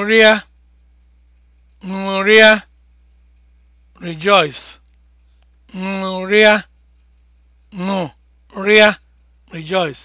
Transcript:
ṅụrịa ṅụrịa rejoice ṅụrịa ṅụrịa rejoice